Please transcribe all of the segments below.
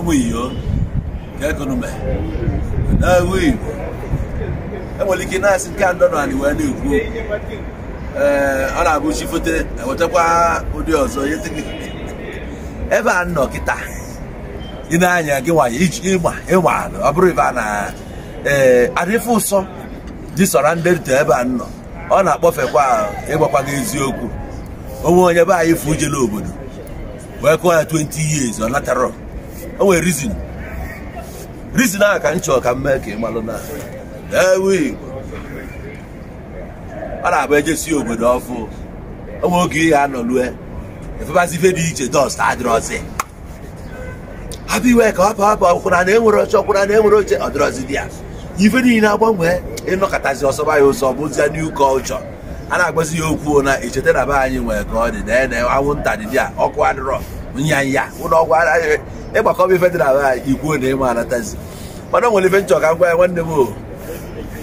ụmụ iyo ka ekonomi n'agụ igbo enwere ike na-asị nke a ndọrọ anị wee na-ekwu ee ọ na-abụ chi fote ewetakwa ụdị ọzọ ebe a nọ kịta ị na-anya gị nwanyị iji ịma ịma ọ bụrụ ibe a na ee adịfe ụsọ dị sọra ndị ebe a nọ ọ na-akpọfekwa ịgbakwa gị eziokwu onwe onye be anyị fụ ujele obodo wee kụọ ya 20 years ọ natara o nwere rizin rizin ahụ ka m chọrọ ka m mee ka ị malụ na ewe igbo ọ na-abụ ejesi obodo ọfụ onwe oge ihe a anọ lue efebazi ife dị iche dọst adịrọzi hapụ iwe ka hapụ hapụ ọkwụna na enwere oche ọkwụna na enwere oche ọdịrọzi dị ya ife niile agbanwe ịnọkọtazi ọsọba ya ụsọ bụzie new culture a na-agbazi ya okwu na echeta na be anyị nwere ka ọ dị na anwụnta dị dị ya ọkụ adịrọ nya ya ụlọ ọgwụ ịgbakọba ife dị na be ikwuo na ịma anatazi mana o nwere ife nchọ ka m gwa ya nwanne m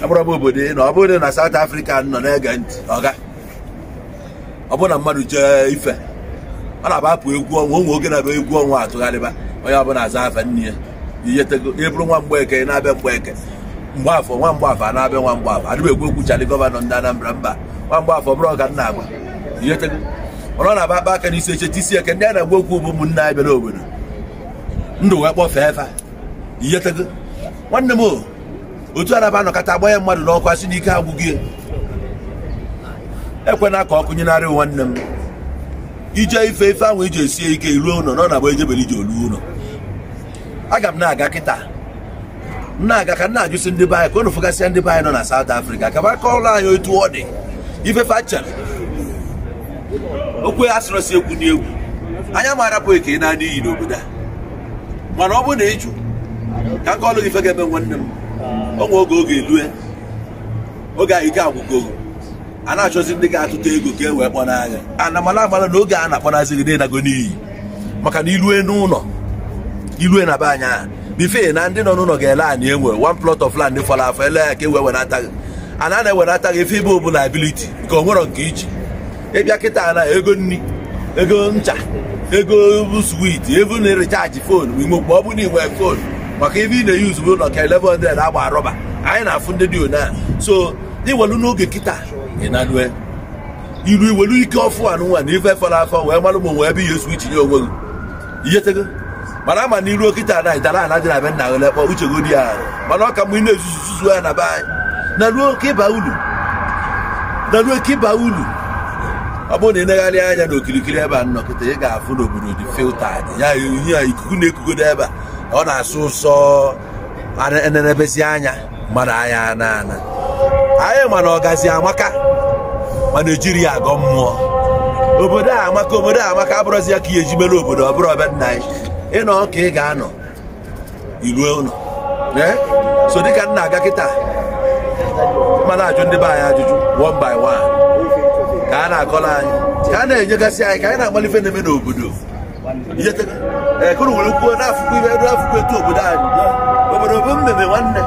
abụrụ obodo na ọ bụrụ na South Africa nọ na-ege ntị ọga ọ bụrụ na mmadụ chee ife ọ na-abapụ egwu ọnwa ụmụ oge na-abịa egwu ọnwa atụgharịba onye ọbụla aza afa nne ya a na na-aba aka n'isi isi eke ndị a na-agwa okwu bụ ụmụnne n'obodo ndụ wee kpọfee efe iyetego nwanne m otu araba anọkọta agba ya mmadụ n'ọkụ asị n'ike agwụghị ekwena ka ọ kụnyenarị nwanne m ije ife ife ahụ iji esie ike ruo ụlọ nọ na bụ ejebere iji olu ụlọ aga m na-aga kịta na-aga ka na-ajụsị ndị be anyị ka unu fụgasịa ndị be nọ na South Africa ka ba kọrọ anyị otu ọ dị ifefe chere okwu asịrọsi ekwu n'egwu anya maara bụ eke na-adịghị n'obodo a mana ọ bụ na ịjụ ka nke ọlụ gị fe ga-eme nwanne m onwe oge oge elue oge a ike agwụgo a na-achọzi ndị ga-atụta ego ka e wee kpọ n'anya ana mana amara na oge a na-akpọnazi gị na n'iyi maka na ilue n'ụlọ ilue na be anya bife na ndị nọ n'ụlọ ga-ele anyị enwe one plot of land fọrọ afọ ele ya ka e wee wenata gị a na-ewenata gị ife ibe bụ liability nke o nwere nke iji ịbịa kịta na ego nri ego ncha ego swit evu na ịrichaji fon mgbe ọ bụ na iwe fon maka ebe ị na-eyuzu bụ nọka 1100 agba rọba anyị na-afụ ndị dị ona so iwelu n'oge kịta ịnanue iru iwelu ike ọfụ anụnwa na ife fọrọ afọ wee malụ ma onwe ebe ihe swich nye onwe gị ihetego mana ama na iruo kịta na itara ala dị na be nna gị lekpọ uchego di ya mana ọ ka mgbe ị na-ezuzu zuzu ya na be anyị na ruo ka ịba ulu ọ bụrụ na ị negharị anya na okirikiri ebe a nnọkịta ị ga-afụ n'obodo dị filtad ya ihe a ikuku na-ekugodo ebe a ọ na-asụ ụsọ enenebezi anya mmadụ anya na ana anyị mana ọgazi amaka ma Naịjirịa agọ mmụọ obodo a amaka obodo a amaka abụrụzi ya ka ihe eji mere obodo ọ bụrụ ọbịa nna anyị ịnọ ka ị ga-anọ iruo ụlọ eh? so dịka nna aga kịta mana ajụ ndị be anyị ajụjụ one by one ka a na-akọrọ anyị ka a na-enyegasị anyị ka anyị na agbalife ife na-eme n'obodo ee eh, nwere kwuo n'afụkwu ibe afụkwu etu obodo anyị obodo bụ mmemme nwanne